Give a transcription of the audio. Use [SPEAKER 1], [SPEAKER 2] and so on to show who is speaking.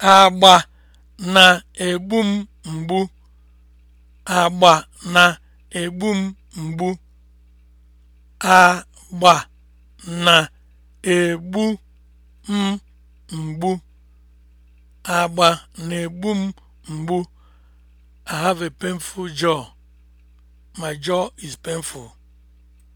[SPEAKER 1] agba na-egbu m mgbu agba na-egbu m mgbu agba na-egbu m mgbu agba na-egbu m mgbu I have a painful jaw my jaw is painful